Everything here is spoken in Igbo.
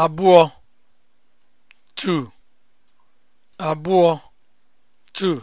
abụọ 2 abụọ 2